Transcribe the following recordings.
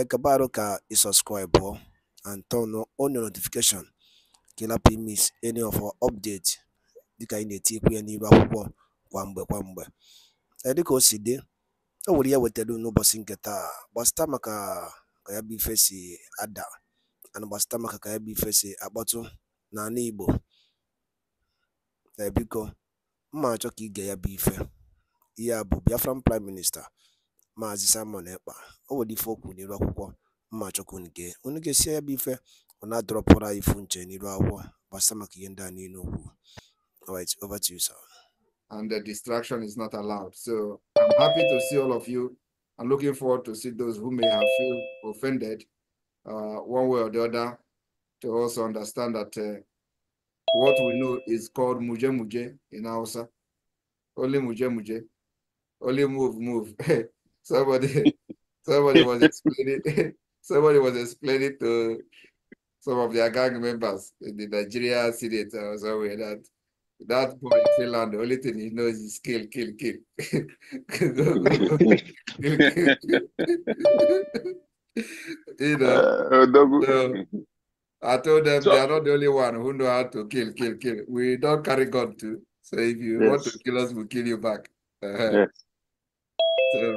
acabar ka i subscribe and turn on your notification ka ị any of our update dịka anyị na-etikwu ya n'iru akwụkwọ kwa mgbe kwa mgbe dịka o si dị o nwere ya e wetara n'ụbọchị nke taa gbasịta maka ka ya bụ ife si ada ana gbasịta maka ka ya bụ ife si akpọtụ n'ala igbo ebiko mma achọ ka ige ya bụ ife ihe a bụ biafran prime minista Maazị Simon Ekpa o nwere ife o kwuru n'iru akwụkwọ mma chọkwu unu gee unu gesie ya bụ ife ọ na-adọrọpụrụ anyị ifu nche n'iru akwụkwọ gbasa maka ihe ndị a niile okwu alright over to you sir and the distraction is not allowed so i'm happy to see all of you i'm looking forward to see those who may have feel offended uh, one way or the other to also understand that uh, what we know is called muje muje in Hausa. Only muje muje. Only move, move. somebody somebody was explaining somebody was explaining to some of their gang members in the Nigeria Senate or somewhere that that boy in Finland, the only thing he knows is kill, kill, kill. go, go, go. you know, uh, so I told them so, they are not the only one who know how to kill, kill, kill. We don't carry gun too. So if you yes. want to kill us, we'll kill you back. Uh, yes. So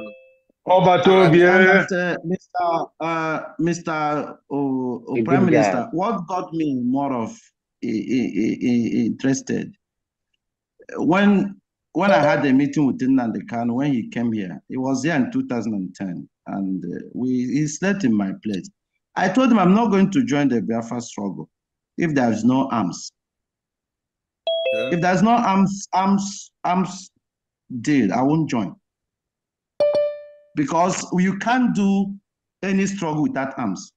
Obatobie. Uh, Mr. Uh, Mr. Uh, uh, Prime Minister, guy. what got me more of interested when when I had a meeting with Nnamdi Kanu when he came here. He was there in 2010, and uh, we he slept in my place. I told him I'm not going to join the Biafra struggle if there is no arms. Okay. If there's no arms arms arms deal, I won't join because you can't do any struggle without arms.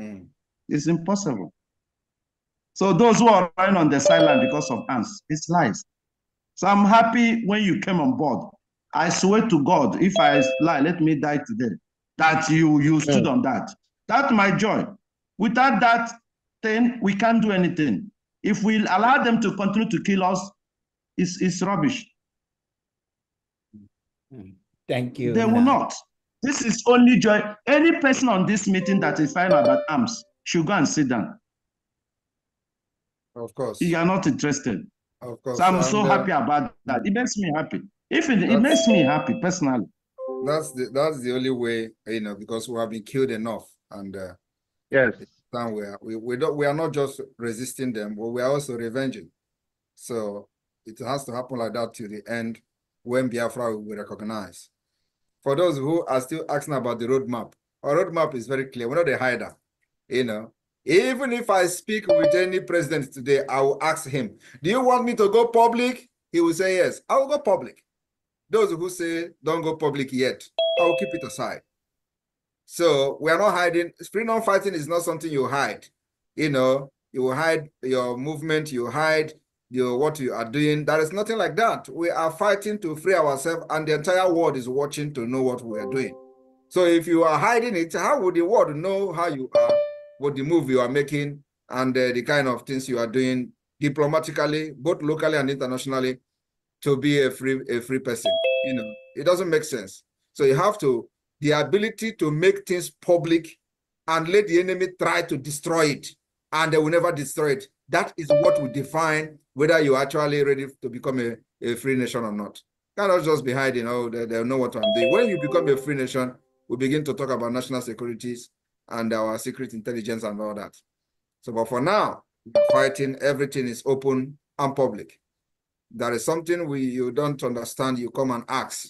Mm. It's impossible. So those who are lying on the sideline because of arms, it's lies. So I'm happy when you came on board. I swear to God, if I lie, let me die today. That you you hmm. stood yeah. on that. That's my joy. Without that thing, we can't do anything. If we allow them to continue to kill us, it's it's rubbish. Mm. Thank you. They will not. This is only joy. Any person on this meeting that is fine about arms should go and sit down. Of course. You are not interested. Of course. So I'm and so uh, happy about that. It makes me happy. If it, it makes me happy personally. That's the that's the only way you know because we have been killed enough and uh, yes, we are we, we don't we are not just resisting them, but we are also revenging. So it has to happen like that to the end when Biafra will be recognized for those who are still asking about the roadmap, our roadmap is very clear. We're not a hider. You know, even if I speak with any president today, I will ask him, Do you want me to go public? He will say, Yes, I will go public. Those who say, Don't go public yet, I will keep it aside. So we are not hiding. Freedom fighting is not something you hide. You know, you hide your movement, you hide you what you are doing. There is nothing like that. We are fighting to free ourselves, and the entire world is watching to know what we are doing. So if you are hiding it, how would the world know how you are, what the move you are making, and uh, the kind of things you are doing diplomatically, both locally and internationally, to be a free a free person? You know, it doesn't make sense. So you have to the ability to make things public and let the enemy try to destroy it, and they will never destroy it. That is what we define whether you're actually ready to become a, a free nation or not. Cannot just be hiding, oh, they, they know what I'm doing. When you become a free nation, we begin to talk about national securities and our secret intelligence and all that. So, but for now, fighting, everything is open and public. There is something we you don't understand, you come and ask.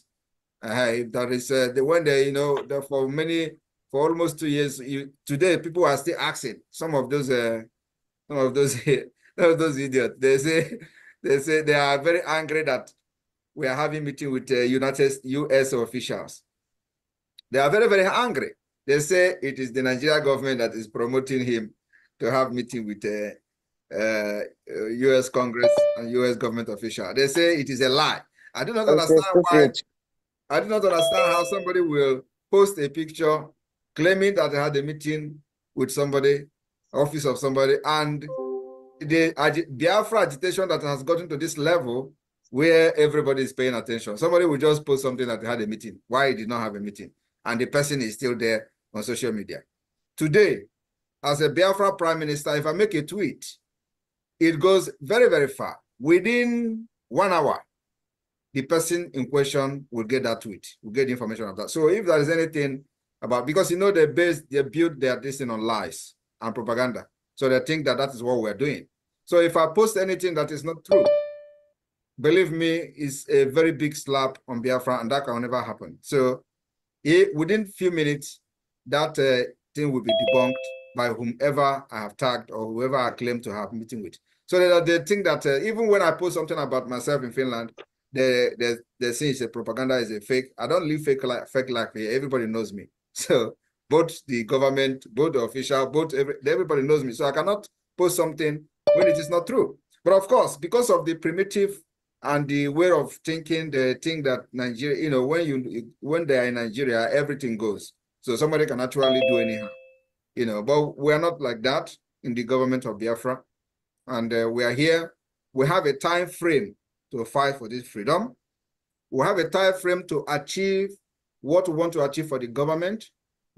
Uh, if there is uh, the one day, you know, for many, for almost two years, you, today people are still asking some of those, uh, some of those those idiots. They say they say they are very angry that we are having meeting with uh, United US officials. They are very very angry. They say it is the Nigeria government that is promoting him to have meeting with uh, uh, U.S. Congress and U.S. government official. They say it is a lie. I do not understand why. I do not understand how somebody will post a picture claiming that they had a meeting with somebody, office of somebody, and the Biafra agitation that has gotten to this level where everybody is paying attention. Somebody will just post something that had a meeting, why he did not have a meeting, and the person is still there on social media. Today, as a Biafra prime minister, if I make a tweet, it goes very, very far. Within one hour, the person in question will get that tweet, will get information of that. So if there is anything about, because you know they base, they build their this on lies and propaganda. So they think that that is what we're doing. So if I post anything that is not true, believe me, it's a very big slap on Biafra, and that can never happen. So it, within few minutes, that uh, thing will be debunked by whomever I have tagged or whoever I claim to have meeting with. So they, they think that uh, even when I post something about myself in Finland, they they they say it's a propaganda, is a fake. I don't live fake life, fake life Everybody knows me. So both the government, both the official, both every, everybody knows me. So I cannot post something when it is not true. But of course, because of the primitive and the way of thinking, the thing that Nigeria, you know, when you when they are in Nigeria, everything goes. So somebody can actually do anyhow, you know. But we are not like that in the government of Biafra, and uh, we are here. We have a time frame to fight for this freedom. We have a time frame to achieve what we want to achieve for the government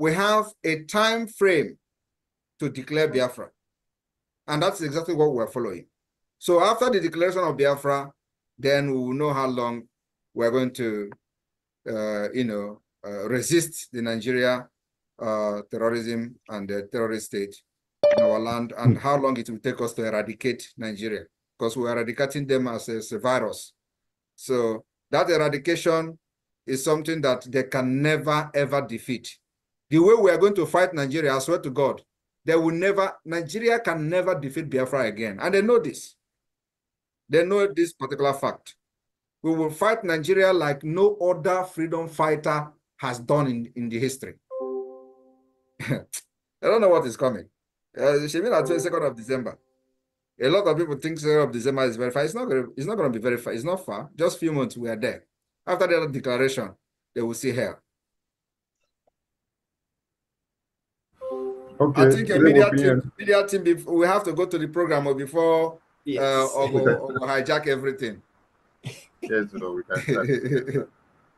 we have a time frame to declare Biafra. And that's exactly what we're following. So after the declaration of Biafra, then we will know how long we're going to, uh, you know, uh, resist the Nigeria uh, terrorism and the terrorist state in our land and how long it will take us to eradicate Nigeria because we're eradicating them as a, as a virus. So that eradication is something that they can never, ever defeat the way we are going to fight Nigeria, I swear to God, they will never, Nigeria can never defeat Biafra again. And they know this. They know this particular fact. We will fight Nigeria like no other freedom fighter has done in, in the history. I don't know what is coming. Uh, she mean at 22nd of December. A lot of people think 2nd of December is very far. It's not gonna, it's not gonna be very far. It's not far. Just few months we are there. After the declaration, they will see hell. Okay. I think a media team, media team before, we have to go to the program oh, before yes. uh, or, oh, or, oh, hijack everything. yes, no, we can.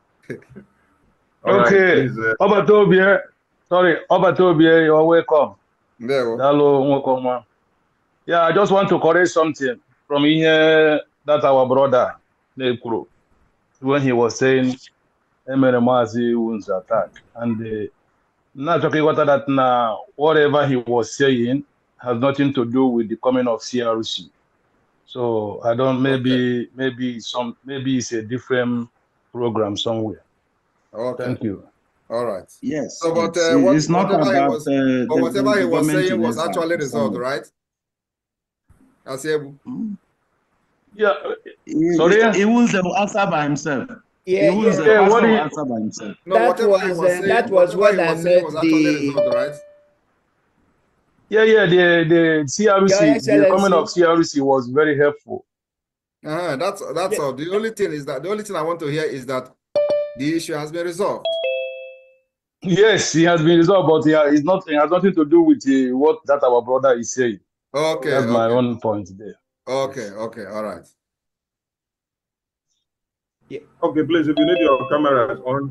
okay, right, uh... Oba Tobie, sorry, Oba Tobie, you're welcome. Hello, welcome. Yeah, I just want to correct something from here that our brother Nekuro, when he was saying Emere Mazi wounds attack and. Uh, about that Now, whatever he was saying has nothing to do with the coming of CRC. So I don't maybe okay. maybe some maybe it's a different program somewhere. Okay. Thank you. All right. Yes. So, but uh, what, it's not whatever about, he was, uh, but whatever he was saying was actually resolved, right? Asiebu. Hmm. Yeah. Uh, sorry. He, he will answer by himself. Yeah, he was yeah. what you, answer by himself. No, that was, was uh, saying, that was what I meant. The Yeah, yeah, the the CRC, the comment of CRC was very helpful. Uh -huh, that's that's yeah. all. The only thing is that the only thing I want to hear is that the issue has been resolved. Yes, it has been resolved, but yeah, it's nothing. it has nothing to do with the, uh, what that our brother is saying. Okay, that's okay. my own point there. Okay, okay, all right. Yeah. Okay, please, if you need your cameras on,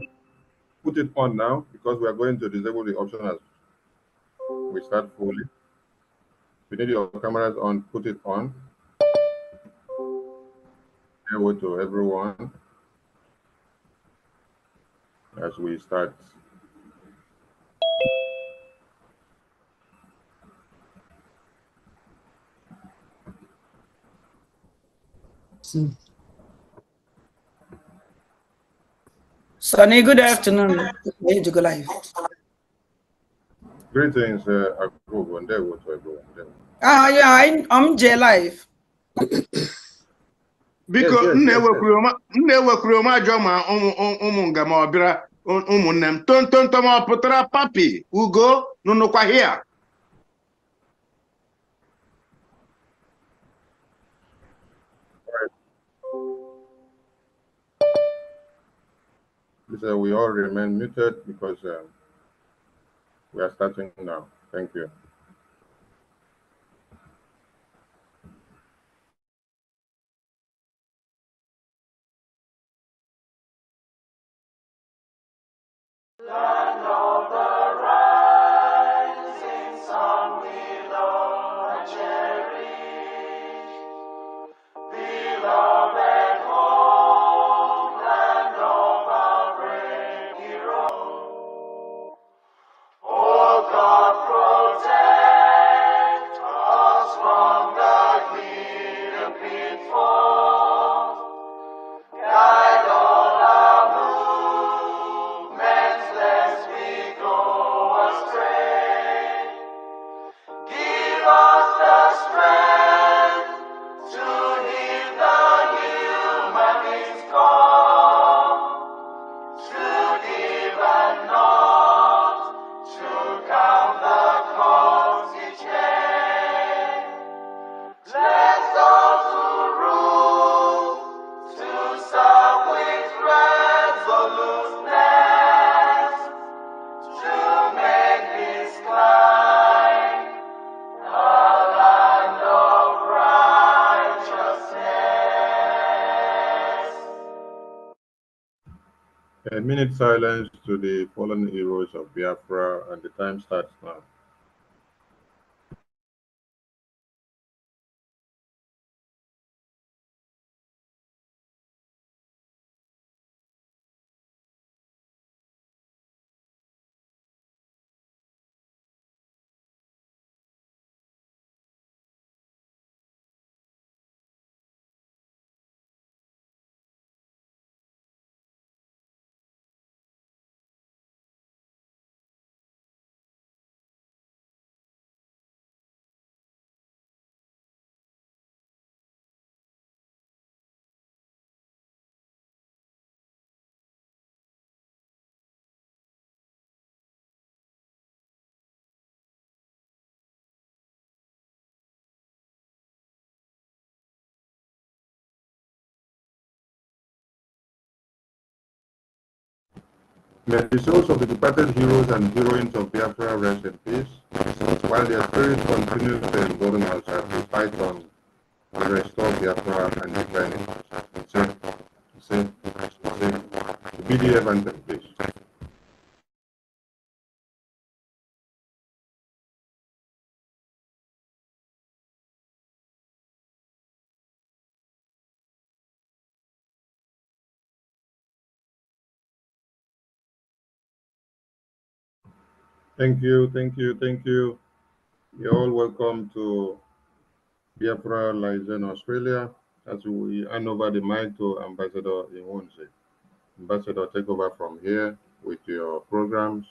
put it on now because we are going to disable the option as we start fully. If you need your cameras on, put it on. Hello to everyone as we start. So hmm. Sonny, good afternoon. Good to go live. Greetings, uh, Agogo, and there was Ah, yeah, I, I'm J Live. Biko, nne m ajọ ma ụmụ nga ma ọ bịara ụmụnne m. Tontonto ma ọ pụtara papi, ugo, nụnụkwa hịa. Please, uh, we all remain muted because um, we are starting now. Thank you. A minute silence to the fallen heroes of Biafra, and the time starts now. May the souls of the departed heroes and heroines of Biafra rest in peace, while their spirits continue to embolden us as we fight on to restore Biafra and defend it. Say, say, say, the BDF the please. Thank you, thank you, thank you. You're all welcome to Biafra Liaison Australia as we hand over the mic to Ambassador Iwunse. Ambassador, take over from here with your programs.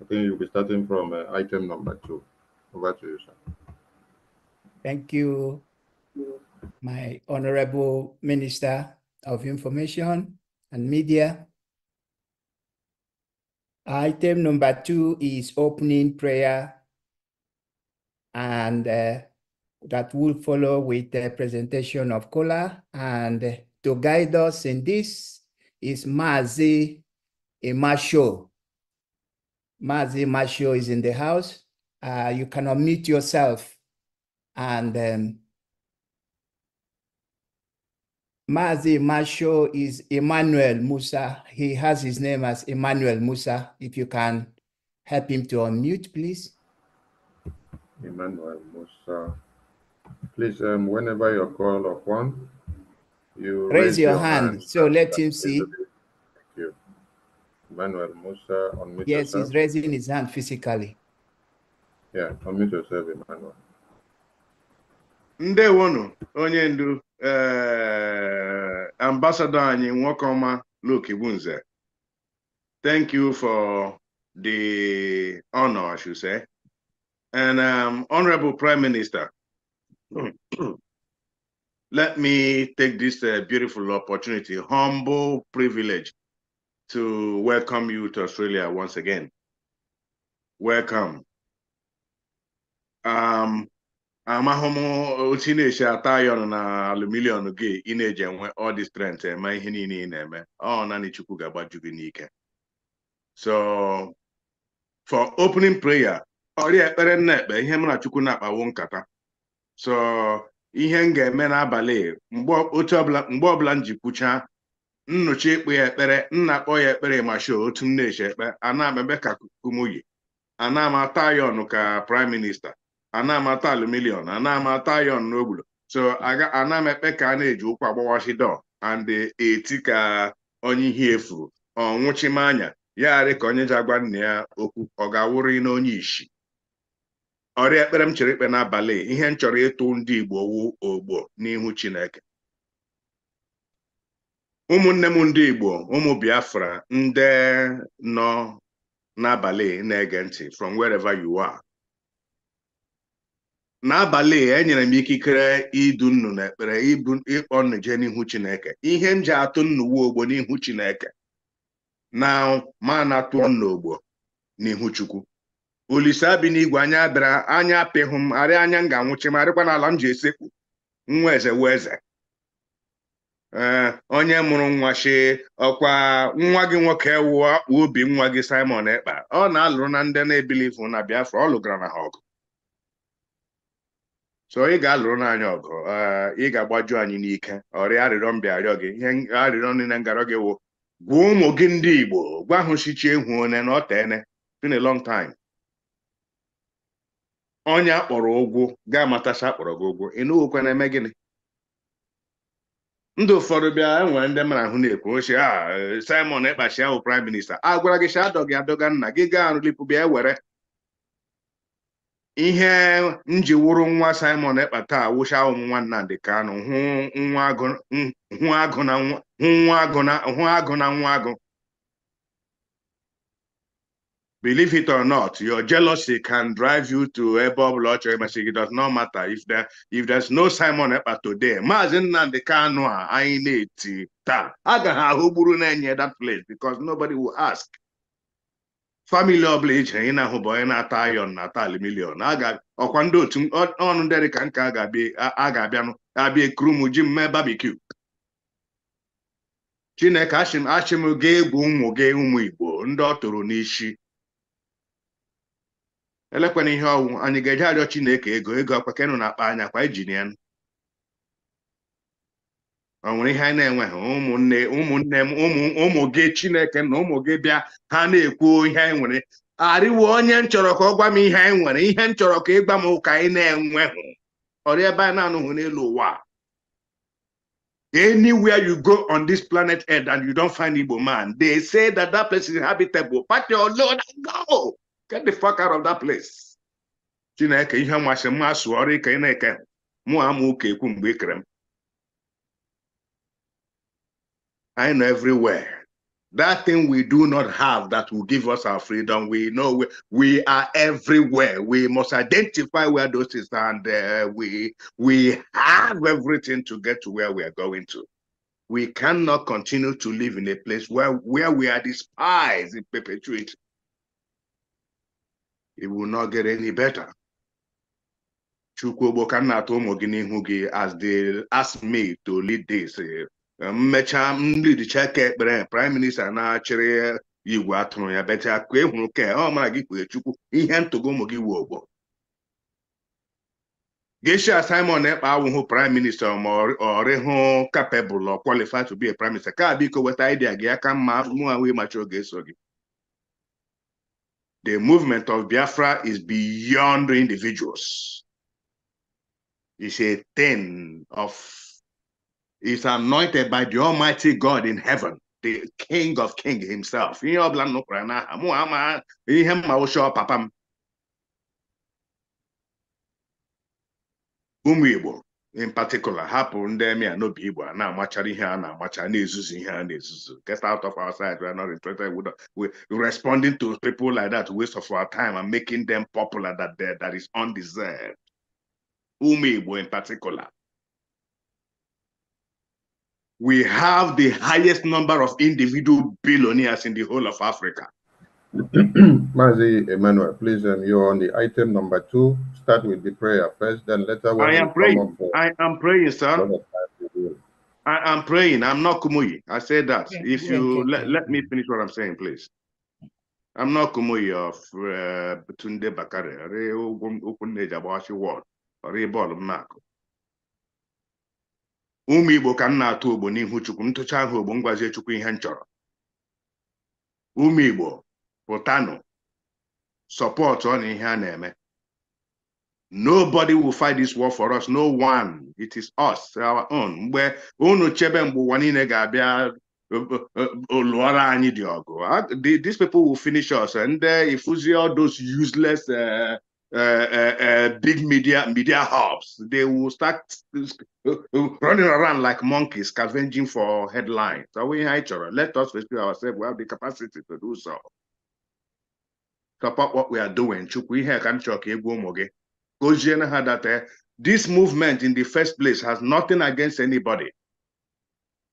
I think you'll be starting from uh, item number two. Over to you, sir. Thank you, my Honorable Minister of Information and Media, Item number two is opening prayer and uh, that will follow with the presentation of Kola. And to guide us in this is Mazi Imasho. Mazi Imasho is in the house. Uh, you can unmute yourself and um, Mazi Masho is Emmanuel Musa. He has his name as Emmanuel Musa. If you can help him to unmute, please. Emmanuel Musa. Please, um, whenever you call up upon, you raise, raise your, your hand, hand. So let him see. Thank you. Emmanuel Musa, unmute Yes, yourself. he's raising his hand physically. Yeah, unmute yourself, Emmanuel. Ndewono, onye ndu uh, Ambassador Anyi Nwokoma Lukibunze, thank you for the honor, I should say. And um, Honorable Prime Minister, let me take this uh, beautiful opportunity, humble privilege, to welcome you to Australia once again. Welcome. Um, amahụ m otu ị na-eche ata ayọn na aluminium gị ị na-eji enwe ọ dị strength eme ihe niile ị na-eme ọ naanị Chukwu ga-agbaju gị n'ike so for opening prayer ọrịa ekpere nna ekpe ihe m na Chukwu na-akpawo nkata so ihe m ga-eme n'abalị mgbe ọbụla m ji kwucha nnọchi ịkpụ ya ekpere nna akpọ ya ekpere ma show otu m na-eche ekpe ana m ebe ka kumuyi ana m ata ayọn ka prime minista ana m ata aluminium ana m ata n'ogbulo so ana m ekpe ka a na-eji ụkwụ agbawashi dọ and eti ka onye ihe efuru ọ nwụchimanya ya ka onye ji agwa nna ya okwu ọ ga-awụrị n'onye ishi ọrịa ekpere m chere ikpe n'abalị ihe m chọrọ ịtụ ndị Igbo wu ogbo n'ihu Chineke ụmụnne m ndị Igbo ụmụ Biafra ndị nọ n'abalị na-ege ntị from wherever you are n'abalị e nyere m ikikere idu nnu na ekpere ịkpọ nnu jee n'ihu chineke ihe m ji atụ nnuwa ogbo n'ihu chineke na ma na tụọ nnu ogbo n'ihu chukwu olise abi n'igwe anya bịara anya apịhụ m arị anya m ga-anwụchi m arịkwa n'ala m ji esekpu nwa eze wee eze ee eh, onye mụrụ nwa shi ọkwa nwa gị nwoke wụọ obi nwa gị Simon Ekpa ọ na-alụrụ na ndị na-ebilivu na Biafra ọ lụgara na ha ọgụ so ị ga-alụrụ n'anya ọgụ eh, ị ga-agbaju anyị n'ike ọrịa arịrịọ mbịa arịọ gị ihe arịrịọ niile ngarọ gị wụ gwa ụmụ gị ndị Igbo gwa ahụ sichi ehu one na ọ teene been a long time onye akpọrọ ụgwụ ga-amatacha akpọrọ gị ụgwụ ị nụghịkwa na-eme gịnị ndị ụfọdụ bịa enwere ndị mara ahụ na-ekwu ochie a ah, Simon Ekpachi ahụ prime minista agwara gị cha adọgị adọga nna gị gaa arụlipụ bịa were ihe nji wụrụ nwa Simon Ekpa taa wụcha ụmụ nwa Nnamdi Kanu hụ nwa agụ na nwa agụ believe it or not your jealousy can drive you to ebe ọbụla ọ chọrọ imesị gị does not matter if there if there's no Simon Ekpa today Maazị Nnamdi Kanu a anyị na-eti taa a ga ha ahụ gburu na-enye that place because nobody will ask famili ọbụla iji anyị na-ahụ bụ onye na-ata ayọn na-ata alimilion ọkwa ndị otu ọnụ ndị dịka nka a ga-abịanụ abịa ekuru ji m mee chineke achịm achịm ga egwu ụmụ gị ụmụ igbo ndị ọ tụrụ n'isi elekwana ihe ọnwụ anyị ga-eje arịọ chineke ego ego akwa kenụ na akpa anya kwa ijinian o nwere ihe anyị na-enweghị ụmụnne ụmụnne m ụmụ gị Chineke na ụmụ gị bịa ha na-ekwu ihe anyị nwere arịwo onye m chọrọ ka ọ gwa m ihe anyị nwere ihe m chọrọ ka ịgwa m ụka anyị na-enweghị ọrịa ebe anyị na-anụghị n'elu ụwa anywhere you go on this planet earth and you don't find Igbo man they say that that place is habitable pack your load and go get the fuck out of that place Chineke ihe masị mmasụ ọrụ ike na-eke mụ amụ ụka ekwu mgbe e kere m I know everywhere. That thing we do not have that will give us our freedom. We know we, we are everywhere. We must identify where those things are, and uh, we we have everything to get to where we are going to. We cannot continue to live in a place where where we are despised in perpetuity. It will not get any better. na as they ask me to lead this. Uh, mmecha nridicha ka ekpere prime minista na-achịrị igwe atụrụ ya ka ị hụrụ ka ọ mara gị kwere chukwu ihe ntụgo ụmụ gị wu ogbo gesha simon ekpe awụhụ prime minista ma ọrịhụ kapebụl ọ kwalifai to be a minista ka biko weta idea gị aka mma mụ ahụ ịmacha oge eso gị the movement of biafra is beyond individuals it's a thing of is anointed by the Almighty God in heaven, the King of King Himself. in particular get out of our sight. we are not interested we are responding to people like that waste of our time and making them popular that that is undeserved. Umibo, in particular we have the highest number of individual billionaires in the whole of Africa. Mazi Emmanuel, please, and um, you're on the item number two. Start with the prayer first, then later. I am praying. I am praying, sir. I am praying. I'm not Kumuyi. I said that. Yeah, if yeah, you yeah, let, let me finish what I'm saying, please. I'm not Kumuyi of uh, Tunde Bakare. Open age about your word. Or a ball of ụmụ igbo ka m na-atụ ogbo n'ihu chukwu m ahụ ogbo ngwazie chukwu ihe m chọrọ ụmụ igbo pụtanụ sọpọtụ ọ na ihe a na-eme nobody will fight this war for us no one it is us our own mgbe unu chebe mgbe ụwa niile ga-abịa lụọrọ anyị dị ọgụ these people will finish us ndị uh, ifuzi all those useless uh, Uh, uh, uh, big media media hubs. They will start running around like monkeys, scavenging for headlines. So we in each other? Let us rescue ourselves. We have the capacity to do so. Support what we are doing. that eh, This movement in the first place has nothing against anybody.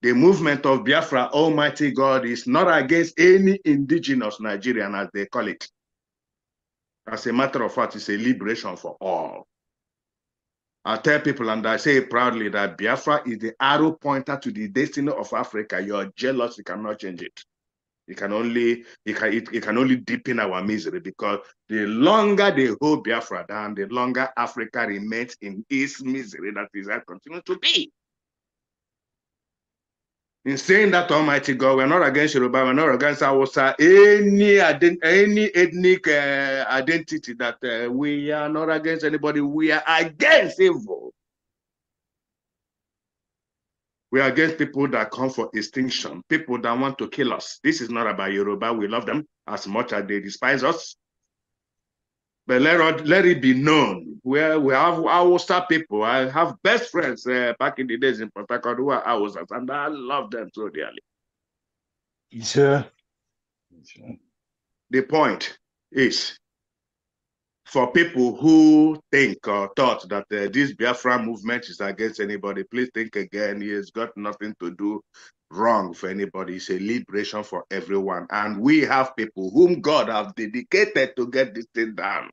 The movement of Biafra, Almighty God, is not against any indigenous Nigerian, as they call it. As a matter of fact, it's a liberation for all. I tell people, and I say proudly, that Biafra is the arrow pointer to the destiny of Africa. You are jealous, you cannot change it. You can only it can, it, it can only deepen our misery because the longer they hold Biafra down, the longer Africa remains in its misery that is that continues to be in saying that Almighty God, we're not against Yoruba, we're not against Awusa, any, any ethnic uh, identity that uh, we are not against anybody, we are against evil. We are against people that come for extinction, people that want to kill us. This is not about Yoruba. We love them as much as they despise us. But let, let it be known. Where we have star people. I have best friends uh, back in the days in Port Harcourt who are and I love them so dearly. Sure. The point is for people who think or thought that uh, this Biafra movement is against anybody, please think again. It has got nothing to do wrong for anybody. It's a liberation for everyone. And we have people whom God have dedicated to get this thing done.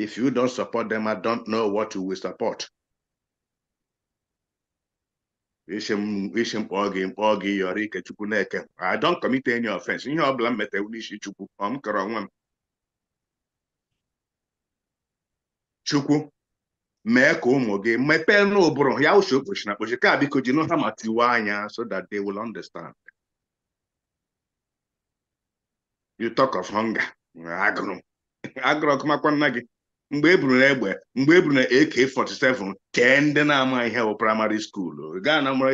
If you don't support them, I don't know what you will support. I don't commit any offense. You know, I'm mete unishi chukwu. I'm karawam. Chukwu. mee ka ụmụ gị mepee n'ụbụrụ ya ụsọ okpochi na kpochi ka biko ji nụ ha ma tiwe anya so that they will understand you talk of hunger agụrụ agụrụ ọkụmakwa nna gị mgbe eburu na egbe mgbe eburu na AK47 kee ndị na-ama ihe bụ praịmarị skuulu gaa na mara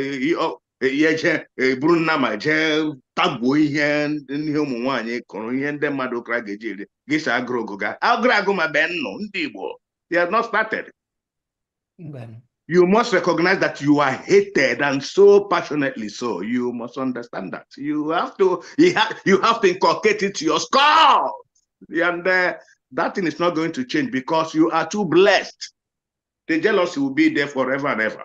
ihe jee eburu nna ma jee tagbuo ihe ihe ụmụ nwaanyị kụrụ ihe ndị mmadụ ụkara ga-eji eri gị si agụrụ ogo ga agụrụ agụ ma bee nnụ ndị Igbo not started you must recognize that you are hated and so passionately so you must understand that you have to you have, you have to inculcate it to your skull and uh, that thing is not going to change because you are too blessed. The jealousy will be there forever and ever.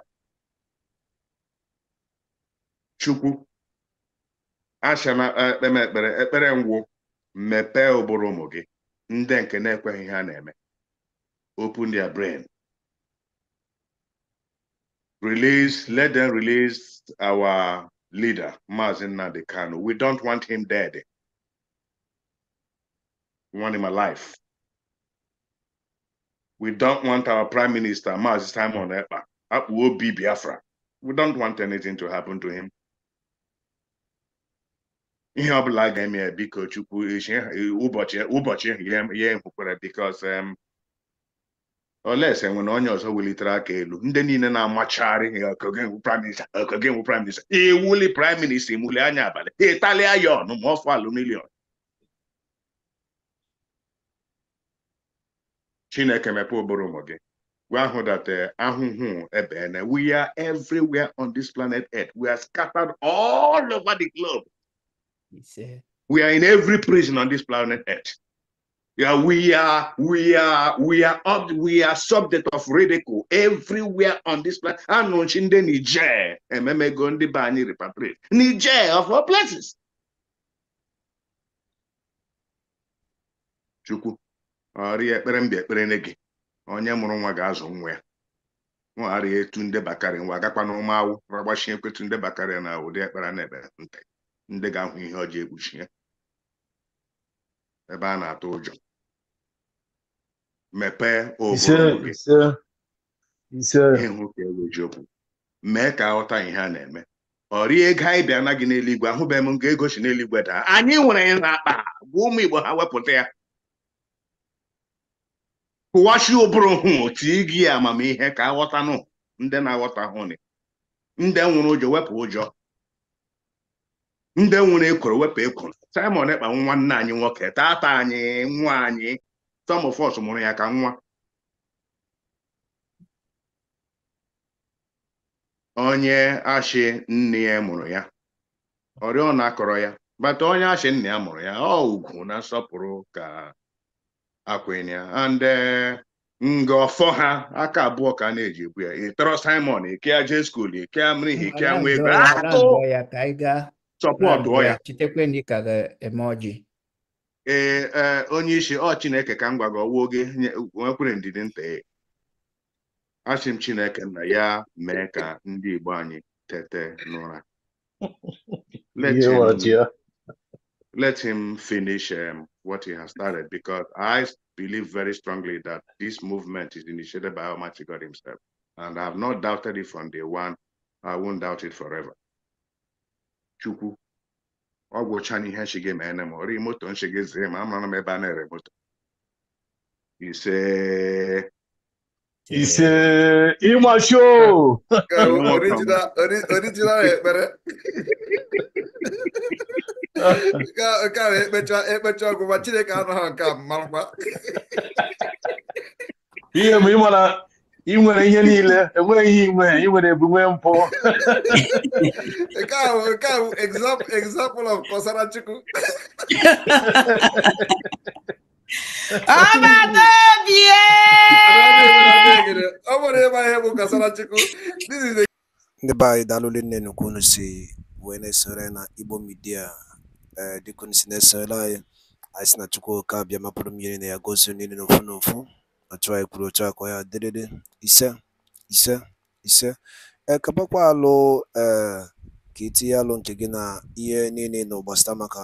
Chukwu, ashana ekpeme eh, eh, ekpere ekpere ngwụ ụmụ gị ndị nke na-ekweghị na-eme. Open their brain. Release, let them release our leader, Mazin Nnamdi Kanu. We don't want him dead. We want him alive. we don't want our prime minister Mazi Simon Ekpa eh, akpụ obi Biafra we don't want anything to happen to him ihe ọ bụla ga-eme ya biko chukwu ụbọchị ya ekwukwara bikos nwere onye ọzọ welitere aka elu ndị niile na amachari ọkọgenwu prime minista prime minister ewuli prime minista imuli anya abalị ịtalịa ya ọnụ ma Chineke ụmụ gị. We are eh, We are everywhere on this planet Earth. We are scattered all over the globe. We are in every prison on this planet Earth. Yeah, we are, we are, we are we are subject of ridicule everywhere on this planet. I'm launching in the Niger, I'm going to be repatriate. Niger of all places. Chukwu. ọrịa ekpere mba ekpere ne gị onye mụrụ nwa ga-azụ nwa ya nwaharịa etu nde bakarị nwa agakwa na ụmụ awụ ragbachi ekwetu nde bakarị na ụdị ekpere na ekpere nta ndị ga-ahụ ihe ọjọ ekpuchi ya ebe a na-atụ ụjọ mepee obodo gị ka eweji okwu mee ka aghọta ihe a na-eme ọ rie ego anyị bịa na gị n'eluigwe ahụbeghị m nga egosi si n'eluigwe daa anyị nwere ya n'akpa gwa ụmụ Igbo ha wepụta ya kụwachi ụbụrụ hụ ị gị amamihe ka aghọtanụ ndị na-aghọtahụ ni ndị nwụrụ ụjọ wepụ ụjọ ndị nwụrụ ekworo wepụ ekworo Simon Ekpa nwanne anyị nwoke tata anyị nwa anyị some of mụrụ ya ka nwa onye ashị nne ya mụrụ ya oriọna akọrọ ya bata onye ashị nna ya mụrụ ya ọ ugwu na nsọpụrụ ka akwenya and eh, ngọfọ ha aka abụọ ka a na-eji ebu ya ịtọrọ Simon ikea jeskul ikea mrihi ikea nwa ego sọpọtụọ ya ee e, e, onye isi ọ Chineke ka m gwa gị ọwụ oge nwekwere ndidi nta e. asị m Chineke na ya mee ka ndị Igbo anyị tete n'ụra let him finish um, what he has started because I believe very strongly that this movement is initiated by Almighty God Himself. And I have not doubted it from day one. I won't doubt it forever. Chukwu. Ọ gwụchaa n'ihe nshige ma ene ma ọ rịị moto nshige ma amara m ebe a na-ere Ise. Ise ịmasho. Original ekpere. nke e, a na-ekpecha ekpecha ọgwụgwa Chineke anọ ha nke a marakwa ihe mgbe ị ị nwere ihe niile enweghị ihe inwe ị nwere ebumwe mpụ nke a bụ example of kọsara Chukwu ọ nwere ịma ihe bụ kọsara Chukwu ndị be anyị daalụle nne nnukwu unu si wee na-esore na Igbo midia. Eh, dịka si na-esoro anyị anyị si na chukwuka bịa mapụrụ mmiri na ya gozie niile na ofu na ofu otu anyị kwuru otu akwa ya dịrịrị ise ise ise ekepakwa eh, alụ ee eh, ka itinye alụ nke gị na ihe niile na gbasara maka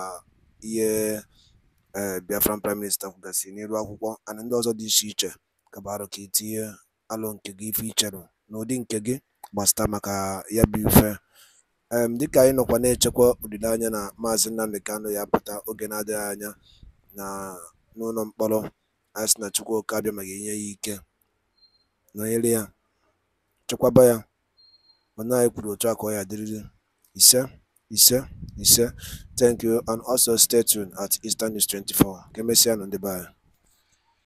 ihe ee biafran prime minista kwugasị n'elu akwụkwọ ana ndị ọzọ dị iche iche kabarụ ka itinye alụ nke gị ife ichere n'ụdị nke gị gbasara maka ya bụ ife um Dịka anyị nọkwa na-echekwa olileanya na Maazị Nnamdi Kanu ya pụta oge na-adịghị anya n'ụlọ mkpọrọ, asị na na Chukwuka abịamaghị nye ya ike, nọnyere ya, chekwaba ya, mana anyị kwuru otu akụ ka dịrịrị adịrịrị Ise, ise, ise. Thank you and also stay tuned at Eastern 24. Ka emesịa nụ ndị be anyị.